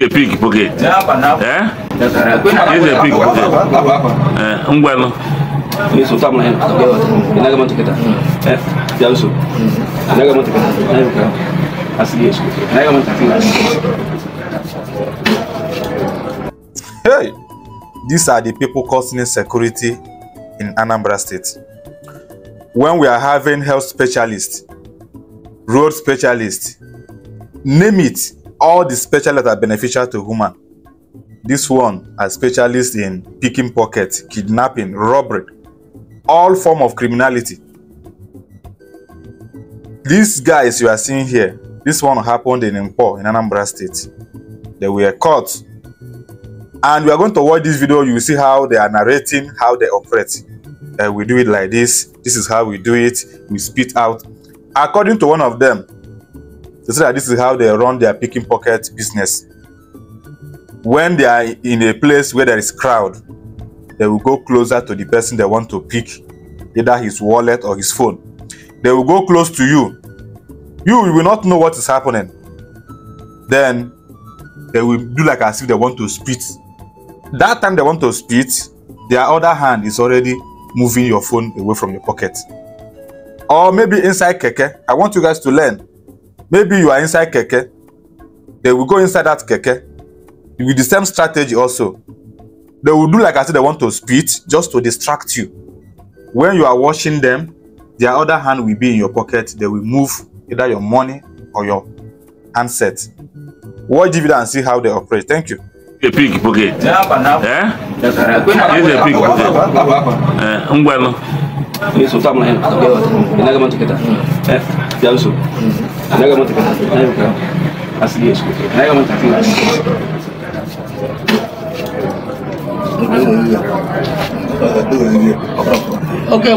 a pig pocket. Eh? This is a pig pocket. Eh, ngwano. Ni so tamu hen. Ina ga mun tiketa. Eh, ya so. Ina ga mun tiketa. Na yuka. Asili yesu. Ina ga mun Hey, these are the people causing security in Anambra State. When we are having health specialists, road specialists, name it, all the specialists that are beneficial to human. This one are specialists in picking pockets, kidnapping, robbery, all form of criminality. These guys you are seeing here, this one happened in Impo in Anambra State. They were caught. And we are going to watch this video, you will see how they are narrating, how they operate. Uh, we do it like this, this is how we do it, we spit out. According to one of them, they say that this is how they run their picking pocket business. When they are in a place where there is crowd, they will go closer to the person they want to pick, either his wallet or his phone. They will go close to you. You will not know what is happening. Then they will do like as if they want to spit. That time they want to spit, their other hand is already moving your phone away from your pocket. Or maybe inside keke. I want you guys to learn maybe you are inside keke they will go inside that keke with the same strategy also they will do like I said. they want to spit just to distract you when you are watching them their other hand will be in your pocket they will move either your money or your handset watch the and see how they operate thank you eh? Eh? a pig pocket eh Yes, is a pig pocket eh ngwanu eso tamla en nagamantiketa eh ya uso na ga mata na ga asali ya shi na ga mata tun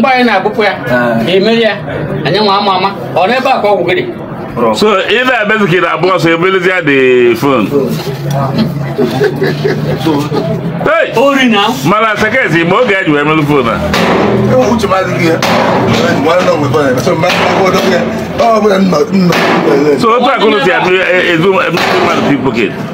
ba mgbe anyị na-abụpụ ya na-emeri ya anyị nwa ama ama ọ n'ebe a ka ọ gwụgịrị So either I better get a boss ability at the phone. Hey! Only now. Mala Sakesi, more guy you have on the phone. Who to my dear? One of them. So my phone up here. Oh, but I'm not. So what I'm going to say, it's one of the people get.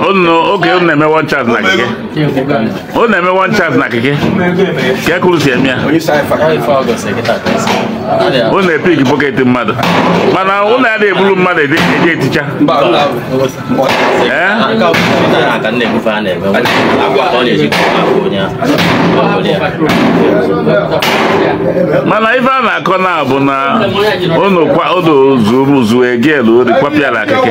oge unu na-eme one chance na akike unu na-eme one chance na akike ka ekuru si eme ya unu na-epik bọket mmadụ mana unu ya na-eburu mmadụ eje eticha eh? mana ife a na-akọ na bụ na unu kwa unu zuo egel ori kwapịara akike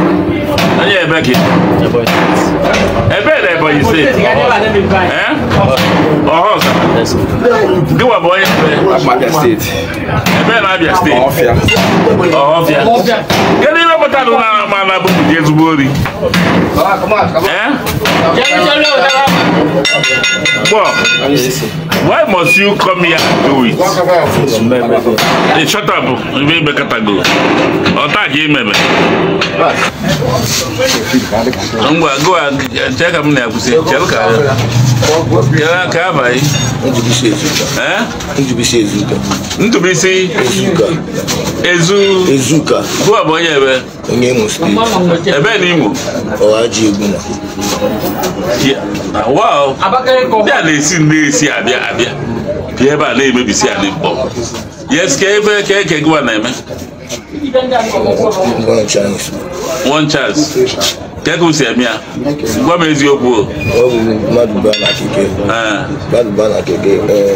boy. ẹyẹ ẹbẹ kì ẹbẹ ẹdẹ ẹbọ yìí sè ẹ ọhọ sà bí wà bọ yẹ ẹbẹ ẹbẹ ẹnà abia state ọhọ fia kéde ìwé mọta ló nà má nà bó kùdí ezigbo rí ẹ. Bob, why must you come here and do it? Hey, shut up. You may be category. Ọ̀tá kì í mẹ̀mẹ̀. Ngwa go uh, a jẹ́ ka m na-akwụsị chere ka yere aka abalị. Ntụbisi ezuka. Ntụbisi ezu. Ezuka. Gụọ bụ eh? onye ebe. Onye Imo steeti. Ebe na Imo. Ọhaji Yeah. Wow abakari kɔ hɔ. bia na esi na esi abia abia bia ba na eme bisi ani bɔ yes kɛ efe kɛ kɛ gwa na eme. one chance. one chance kẹ́kọ̀ọ́ sẹ̀mí à gbọ́mọ eziokwu o. mmadụ baa na keke mmadụ baa na keke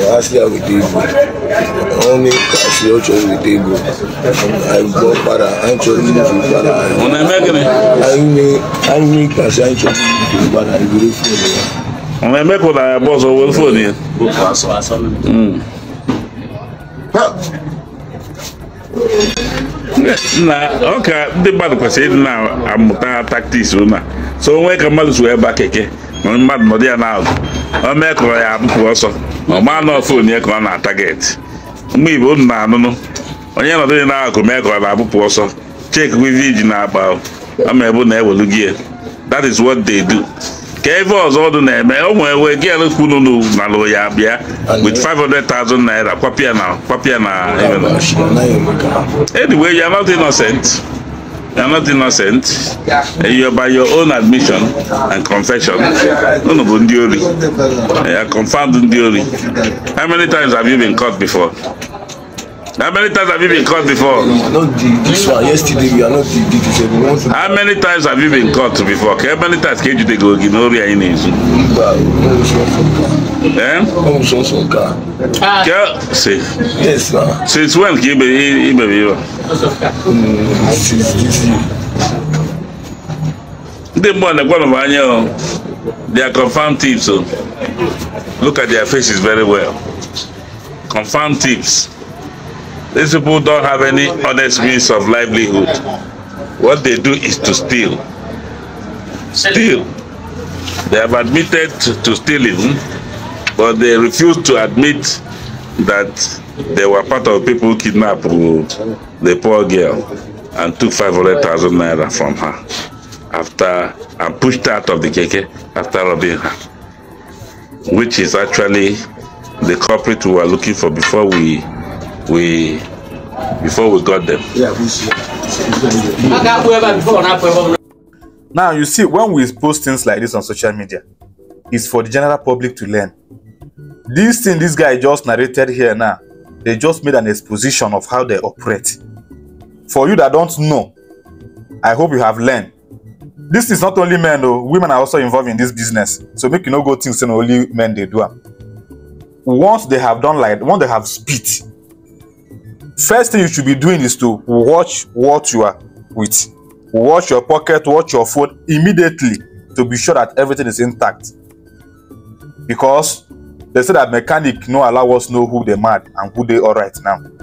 ha si ya weta igbo ọnụ ka si ọ chọrọ weta igbo anyị gbọ kpara anyị chọrọ ibufu kpara anyị. ọ na-eme gịnị. anyị ka si anyị chọrọ ibufu kpara anyị buru fon ya. ọ na kò dàrá bọ́ sọ owó fò ọka ndị mmadụ kwesịrị ịdị na-amụta taktiks ụna so onwe ka mmadụ so ebe a keke na mmadụ nọdụ ya na ọ mee kụrọ ya abụpụ ọsọ ma ọ maa ọ na mgbe igbo unu na-anụnụ onye nọdụ ya na mee ka ọ na ọsọ ji na-akpa ọ ma na ewelu ya that is ka ebe ọzọ ọdụ na-eme o nwee wee gị ele kwunu ya bịa with 500,000 naira kwapịa na kwapịa na anyway you are not innocent you are not innocent you are by your own admission and confession unu bụ ndị ori you are confirmed ndị ori how many times have you been caught before How many times have you been caught before? this one. Yesterday we are not the, the, this one. How many times have you been caught before? How many times can you to go in Ori Ainezi? Eh? Ah. See. Yes, sir. Since when can you be here? Bebiwa? Mm, since this year. Ndị mmụọ na-ekwenụ oh, They are confirmed tips. Oh. Look at their faces very well. Confirmed tips. These people don't have any honest means of livelihood. What they do is to steal. Steal. They have admitted to stealing, but they refuse to admit that they were part of people kidnapped the poor girl and took 500,000 naira from her after and pushed out of the keke after robbing her, which is actually the culprit we were looking for before we we before we got them. Now you see, when we post things like this on social media, it's for the general public to learn. This thing this guy just narrated here now, they just made an exposition of how they operate. For you that don't know, I hope you have learned. This is not only men though, women are also involved in this business. So make you no go things and only men they do. Once they have done like once they have spit, first thing you should be doing is to watch what you are with watch your pocket watch your phone immediately to be sure that everything is intact because they say that mechanic no allow us know who dey mad and who dey alright now